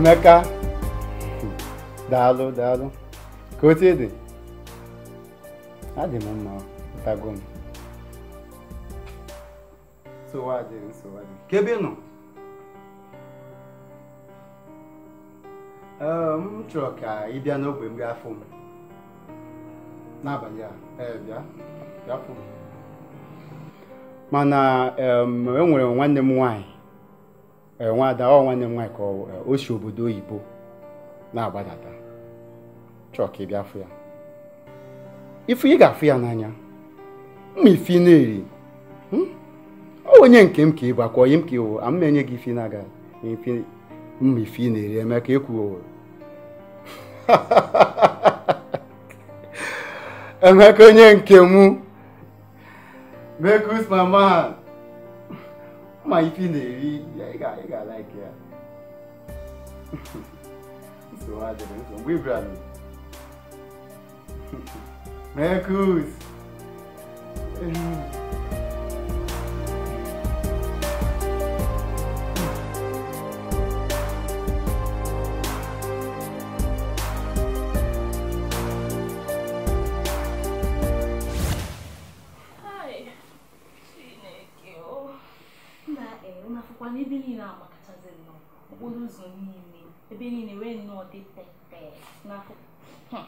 emeka daalụ daalụ ka otu ị dị adị m mma ụtago m nsowadị nsowadị ka ebe nọ m chọrọ ka ị bịa n'ogbe mgbe fụ m n'abalị a ee bịa bịa fụ m mana ehm, e nwere nwanne m nwanyị. Eh, ada ọ nwanne m nwaanyị ka eh, osi si obodo oyibo na-agbadata chọọ ka ị bịa fụ ya ifu ị ga-afụ ya n'anya mma ifi na-eri hmm? ọ onye nke m ka ịbụ bakwa onye m ka ịwụ ama enye gị ifi na-aga mma ifi na-eri eme ka ekwu emeka onye nke m mekus mama ma ife na-eri ị ga-ala ike ya nsogbu adịrị nso mgbe ibrahim mekus ụzọ niile ebe niile wee nnọọ dị pepee n'akụkụ hmm.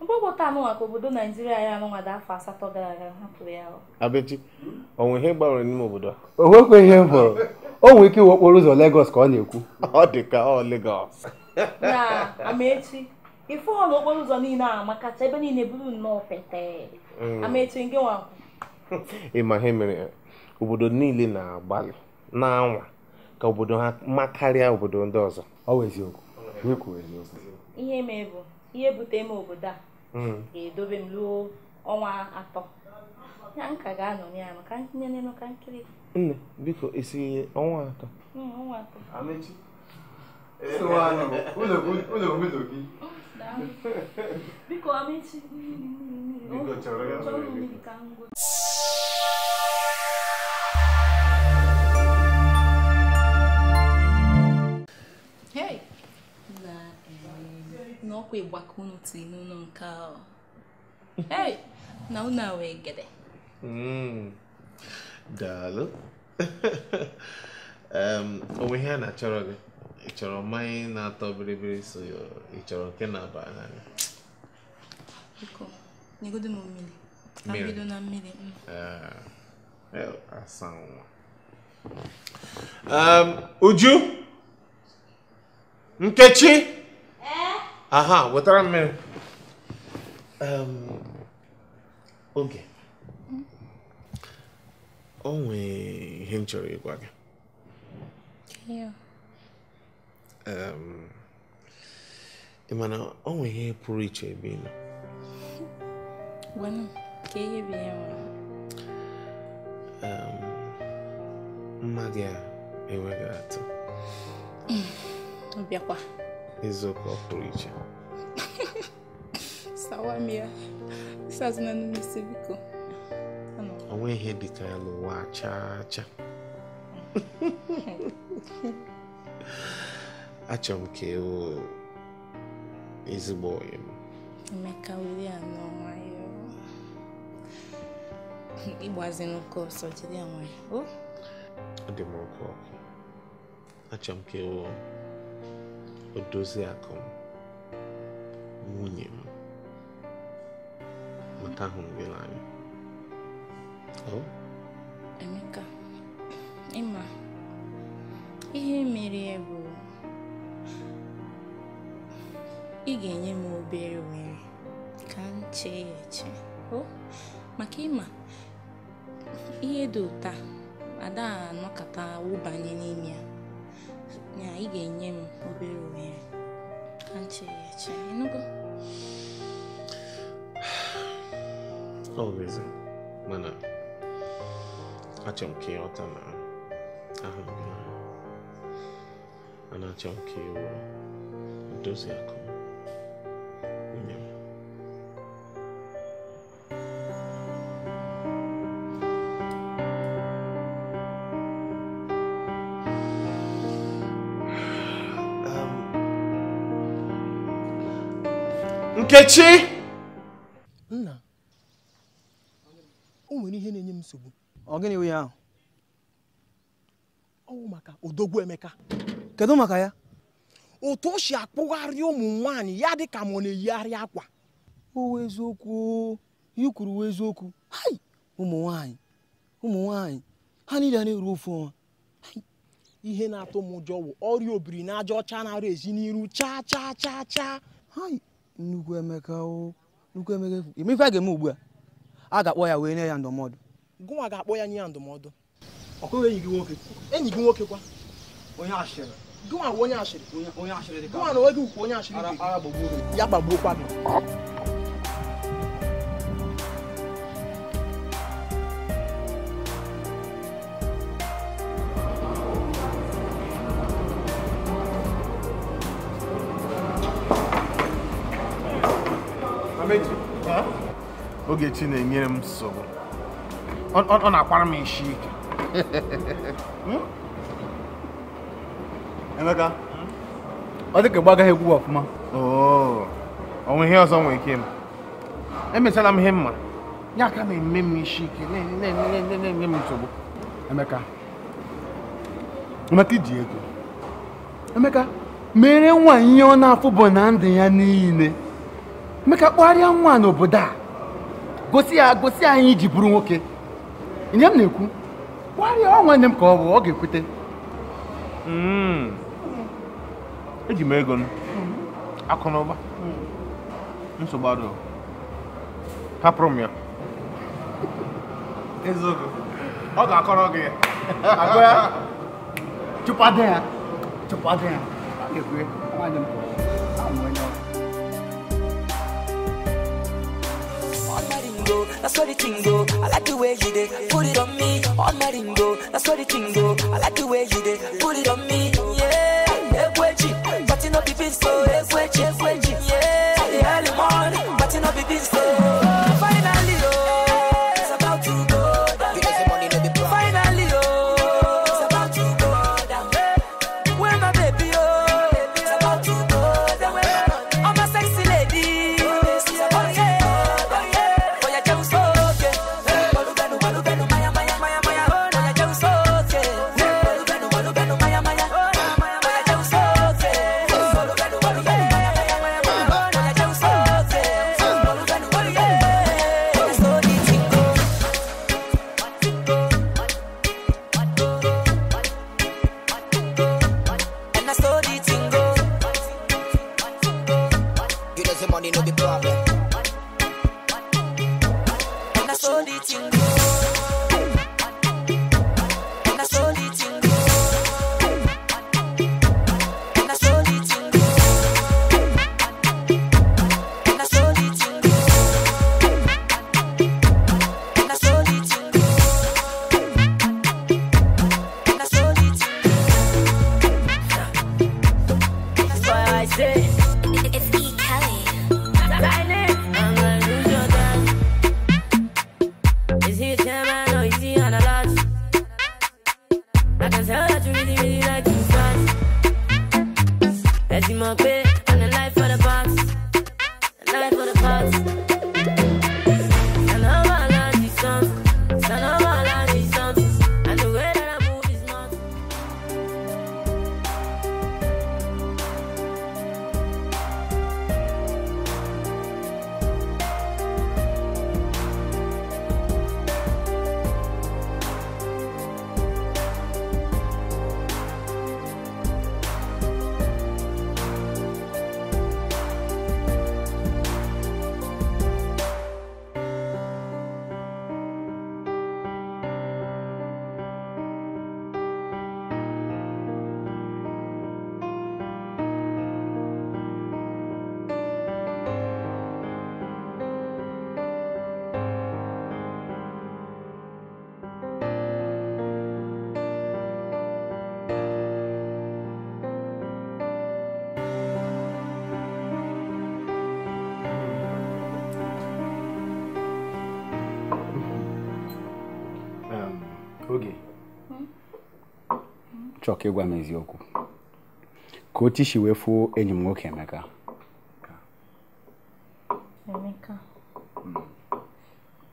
mkpọkọta anụnwa ka obodo naijiria ya anụnwada afọ asatọ gara aga hapụrụ ya abechi onwe ihe gbanwere n'ime obodo a o nwekwa ihe m hụrụ o nwere ike iwe okporo ụzọ legos ka ọ na-ekwu ọ dị ka ọ legos na amaechi ife ọnụ okporo ụzọ niile a makacha ebe niile bụrụ nnọọ pete mm. amaechi nke nwa ịma ihe mere obodo niile na-agbalị na-anwa ka obodo ha mma karịa obodo ndị ọzọ ọ ihe mee bụ ihe bute m obodo a hmm. ga-edobe m ruo ọnwa atọ ya m ka ga-anọ ya ka ntinye n'elu ka nkiri nne biko ihe ọnwa atọ biko amechi na ọkwa ịgbakọ unu tiri n'ụlọ nke ahụ na unu awee egede hmm. daalụ onwe ihe a na-achọrọ gị ị chọrọ mmanya na-atọ biribiri so ị chọrọ nke na-aba n'anya mm. ah, Uju Nkechi aha wetara mmiri oge o nwee ihe m chọrọ ịgwa gị ị mana o nwee ihe pụrụ iche ebe ị nọ mma gị a enweghị atụ ọ Изоклоплича. Саламия. Сазна на мисивико. Onwe ihe Não. ka ya n'ụwa chaa acha Achọrọ m ka ịwụ ezigbo onye m. Emeka were não n'ọnwa ya. Ịgbazi n'ụka ọsọ jide ya A Ọ dị m ọkụ que Achọrọ Odoziakụ m, nwunye m, mata hụrụ gị n'anya. Emeka, ịma ihe mere ya bụ ị ga-enye m obere ohere ka m chee ya eche maka ịma ihe dị ụta ada anọkọta wụbanye n'ime ya na ị ga-enye m obere ohere antị ya cha ịnụgo always mana achọrọ m ka ịghọta ma ahụ m na achọrọ m ka ịwụ oh. dozie akụ m Nkechi! Nna, o nwere ihe na-enye m nsogbu. Ọ gịnị wụ ya ahụ? Ọ bụ maka odogwu Emeka. Kedu maka ya? Otu o si akpụgharị ụmụ nwanyị, ya dị ka m na-eyigharị akwa. o Owu eziokwu, ihe kwuru wụ eziokwu. Hai! Ụmụ nwanyị ụmụ nwanyị ha niile na-eru ofu ọnwa. Ihe na-atụ m ụjọ wụ ọrịa obiri na aja ọcha na-arụ ezi n'iru chaa chaa chaa chaa. Hai! nnukwu emeka nnukwu emeka ime ife a ga-eme ugbu a a ga-akpọ ya wee nye ya ndụmọdụ gụnwa ga-akpọ ya nye ya ndụmọdụ ọkụghị enyi gị nwoke enyi gị nwoke kwa onye ashịrị gụnwa bụ onye ashịrị onye ashịrị dị ka gụnwa na onwe gị ukwu onye ashịrị ya gbagbuokwa gị Ogechi na-enyere m nsogbu ọ na-akwara m isi ike hmm? Emeka ọ dịka gba agaghị egwu ọfụma onwe oh, ihe ọzọ nwere ike m emechara m ihe mma ya aka na-eme m isi ike na-enye m nsogbu Emeka Emeka iji ego Emeka mere nwa ihe ọ na-afụ bụ na ndụ ya niile Emeka kpọgharịa nwa n'obodo a gosi ya gosi anyị iji bụrụ nwoke nye m na-ekwu gwarịa nwanne m ka ọ bụ ọ ga-ekwute hmm. eji m ego akụ na ụba nsogbu adụ hapụrụ m ya eziokwu ọ ga-akọrọ gị chụpado ya chụpado ya ga-ekwe nwanne m ka that's what the thing go. I like the way you did, put it on me, on my ring go. that's what the thing go. I like the way you did, put it on me, yeah. Ekweji, but you know the so ekweji. chọọ ka ịgwa m eziokwu ka o tishi wee fuo enyi m nwoke Emeka Emeka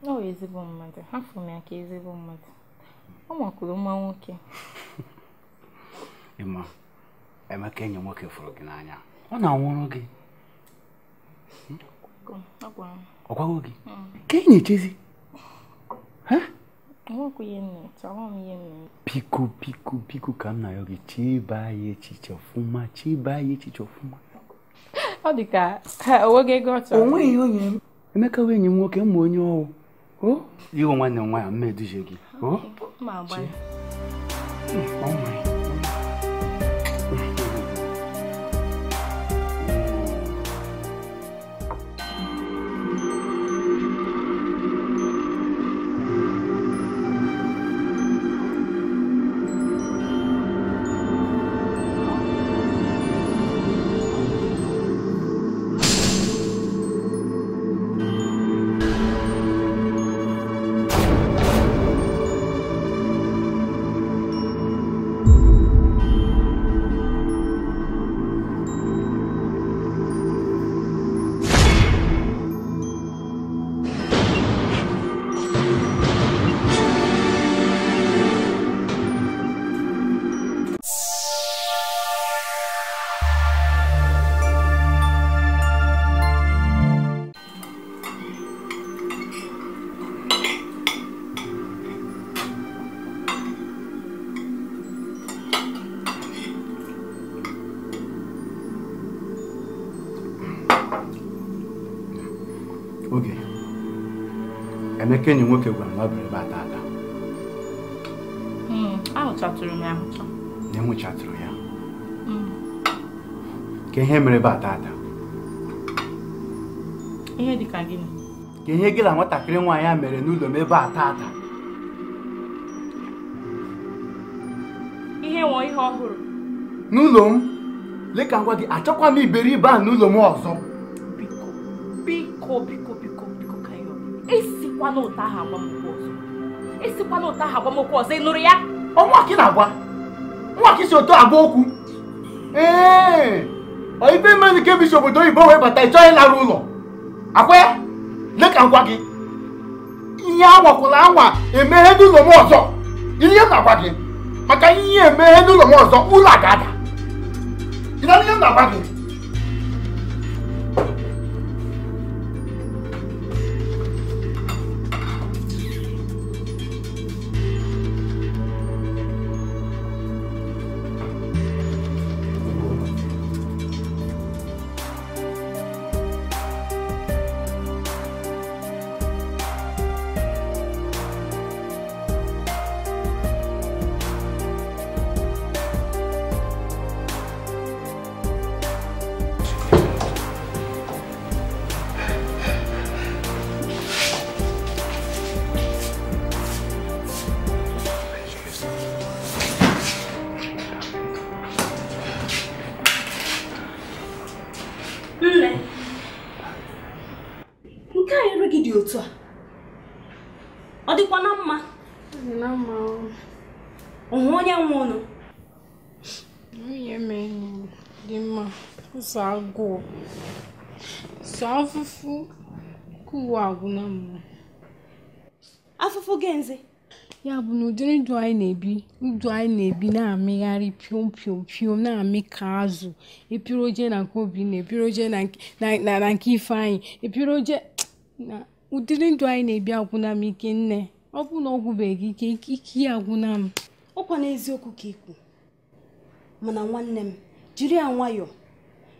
ọ hmm. ezigbo mmadụ hafụ m ya ka ezigbo mmadụ ọ makwuru mma nwoke ịma Emeka enyi nwoke fụrụ gị n'anya ọ na-anwụrụ gị ọ gwago gị hmm. ka enyi chezi Piku piku piku kamna yogi chiba ye chichofuma chiba ye chichofuma. Ọ dị ka onwe ego ọchọ. Onwe ihe onye m. Emeka wee nye m nwoke mma onye ọwụ. O? Iwe nwanne m nwaanyị mma eduje O? Ma agba. Emeka enyi nwoke gwara m na ọ bịara ebe a taata. Hmm, ahụchatụrụ m ya ahụcha. Na enwụchatụrụ ya. Hmm. Ka ihe mere ebe a taata. Ihe dị ka gịnị? Ka ihe gị na nwatakịrị nwaanyị a mere n'ụlọ m ebe a taata. Ihe nwọ ihe ọhụrụ. N'ụlọ m, leka ngwa gị achọkwa m iberibe a n'ụlọ m ọzọ. Biko, biko, biko, biko, biko, ka ihe ọ ekwukwala ụta ahụ agbamokwu ọzọ esikwala ụta ahụ agbamokwu ọzọ ị nụrụ ya ọnwaki na-agwa nwaki si otu agwa okwu ee eh, ife mmadụ ka ebisi obodo oyibo wee bata ịchọ ịlara ụlọ akwa ya leka ngwa gị ihe anwakwụla anwa emeghe n'ụlọ m ọzọ ihe m na-agwa gị maka ihe emeghe n'ụlọ m ọzọ ụlọ a ga-ada ịna ihe m na-agwa gị ụzọ̀ agụụ̄ sọ̀ afufu kà ụ̀wà àgwụla m̄ afụfụ gị̄ ya bụ nà ụ̀dịrị ndụ̄ anyị na-ebi ndụ anyị na-ebi na-àmịgharị pịòm pịòm pịòm na amị kà azụ̀ èpiro jee nà ǹke Obinna èpiro e jee nà ǹk nà nà nà ǹke Ifeanyị̀ èpiro jee nà ụ̀dịrị anyị na-ebi agwụna m ike nne ọ bụ na ọ gwụbèghì ike ike ya agwụna m. ọkwa n'eziokwu ka kà ị kwù mànà nwanne m jiri ya nwayọọ.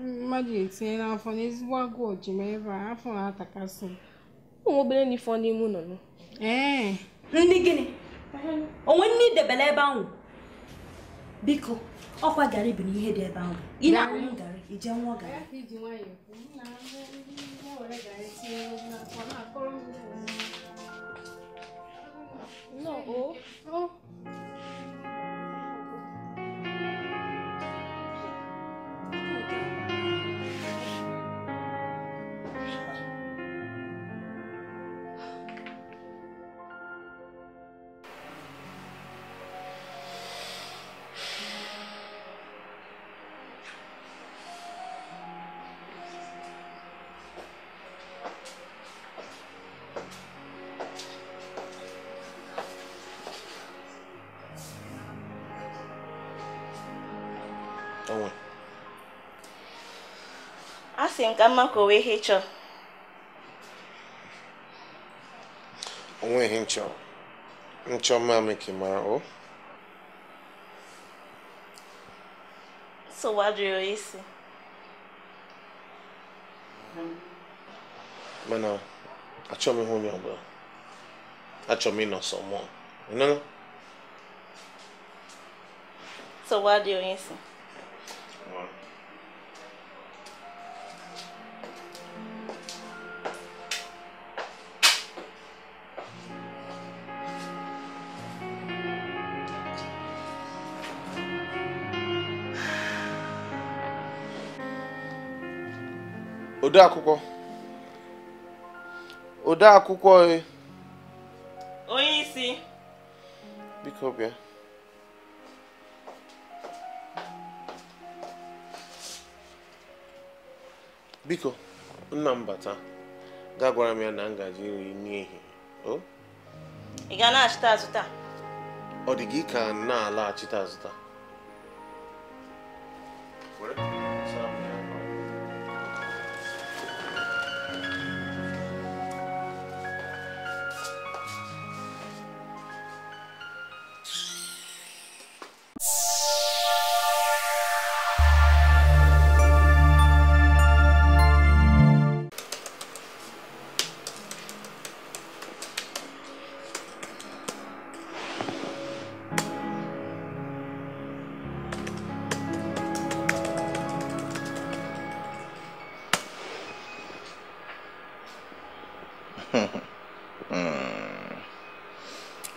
mmadụ etinye n'afọ n'ezigbo agụụ ji m ebe a afọ na-atakasị m ụmụ obere n'ife n'ime ụlọ nọ ee ndị gịnị onwe nne idebele ebe ahụ biko ọkwa garị bụ n'ihe dị ebe ahụ ị na-aṅụ garị ije nwụọ garị No. Oh. asị m ka mma ka o wee ihe chọọ onwe ihe nchọ nchọ mma e ka mara o sowajụrụ isi mana achọm ihe onye ọbụla achọm ịnọ sọ mụọ ịnụnụ sowadị onye isi odeakwụkwọ odeakwụkwọ e. onye isi biko bịa biko nna m bata ga gwara m ya na ngaji nri n'ihi ị ga achịta ọ dị gị ka na-alaghachite azụ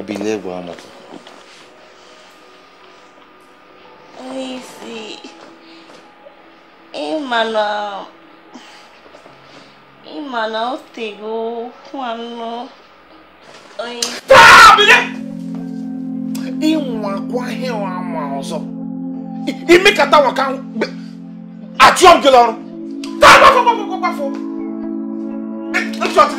ibi ilé ẹ̀gbọ́n àmọ́. Lizzy, ìmọ̀nà ìmọ̀nà ó tègbó fún àná. Fáàbílẹ̀! Ìwọ̀n àkọ́ ahẹ́wọ̀n àmọ́ ọ̀zọ́. Ìmí kàtà wọ̀ ká àti ọ̀gẹ̀lẹ̀ ọ̀run. Tá a bá fọ́ bá fọ́ bá fọ́. Ẹ jọ̀ọ́ ti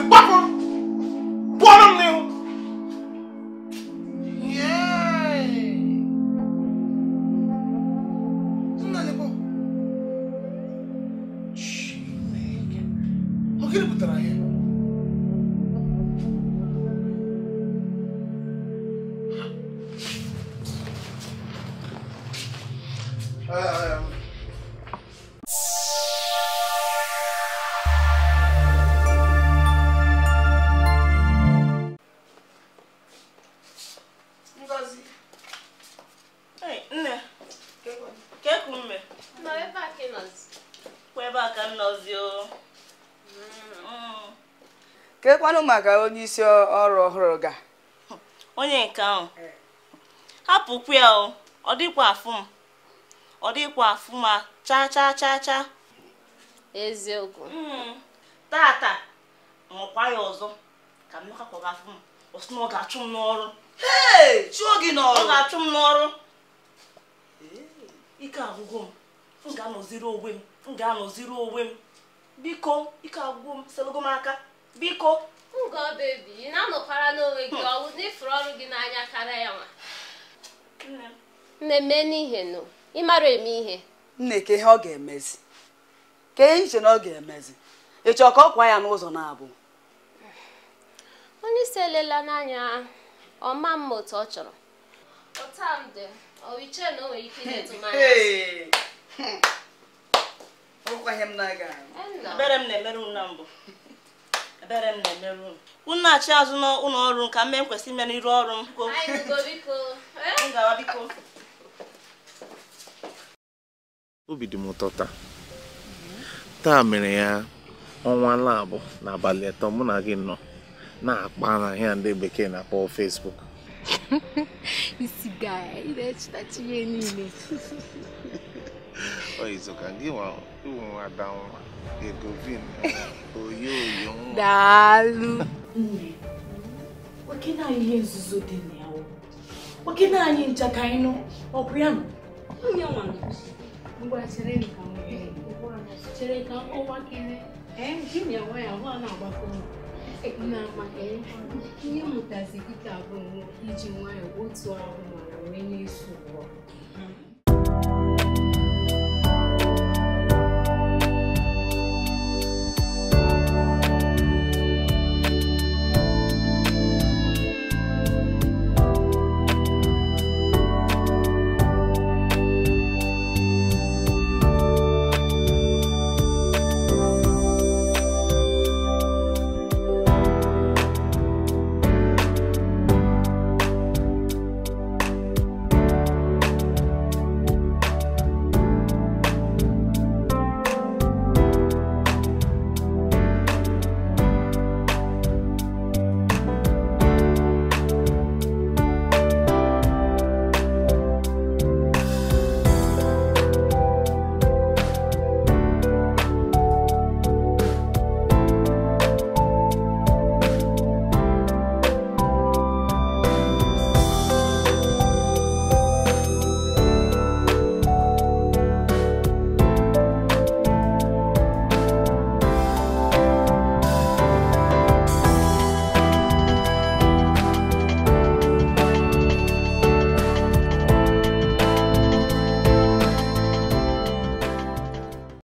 kwanụ maka onye isi ọrụ ọhụrụ ga onye nke ahụ eh. hapụkwu ya o ọ dịkwa afụ m ọ dịkwa afụ ma cha cha cha cha. eziokwu hmm. tata nwekwa ya ọzọ ka mmeka kwaga afụ m ọ sị na ọ ga-achụ m n'ọrụ chụọ gị n'ọrụ ọ ga-achụ m n'ọrụ eh, ike agwụgwọ m m ga-anọziri onwe m m ga-anọziri onwe m biko ike agwụgwọ m selụgo m aka biko ngọ bebi ị na-anọkwara n'onwe gị ọwụ n'ifuru ọrụ gị n'anya karịa ya nwa nne mee n'ihe nụ mara eme ihe nne ka ihe ọ ga-emezi ka ihe iche na ọ ga-emezi ị chọọ ka ọ kwa ya n'ụzọ na-abụ onye isi elela n'anya ọma mma otu ọ chọrọ ọ ọwiche na o nwere ike ịdetụmanya hmm. m na-aga m na na mbụ ebere m na-emere unu unu na-achị azụ n'ụlọ ọrụ m mme m kwesịrị nkwesị ime n'iru ọrụ m ngawa biko obi dị m ụtọ taa taa mere ya ọnwa labụ n'abalị atọ mụ na gị nọ na-akpa na ahịa ndị bekee na-akpọ Facebook gị nwa ada Egovin oyoyo daalụ nne nwoke naanị ihe nzuzo dị na ya nwoke naanị ncha ka anyị nụ ọ bụ ya chere ka ọnwa kere ji na nwa ya hụ na-agbakọ na-ama ihe mụtazi gị ka bụ iji nwayọọ otu ahụ mara wee na-eso ụwa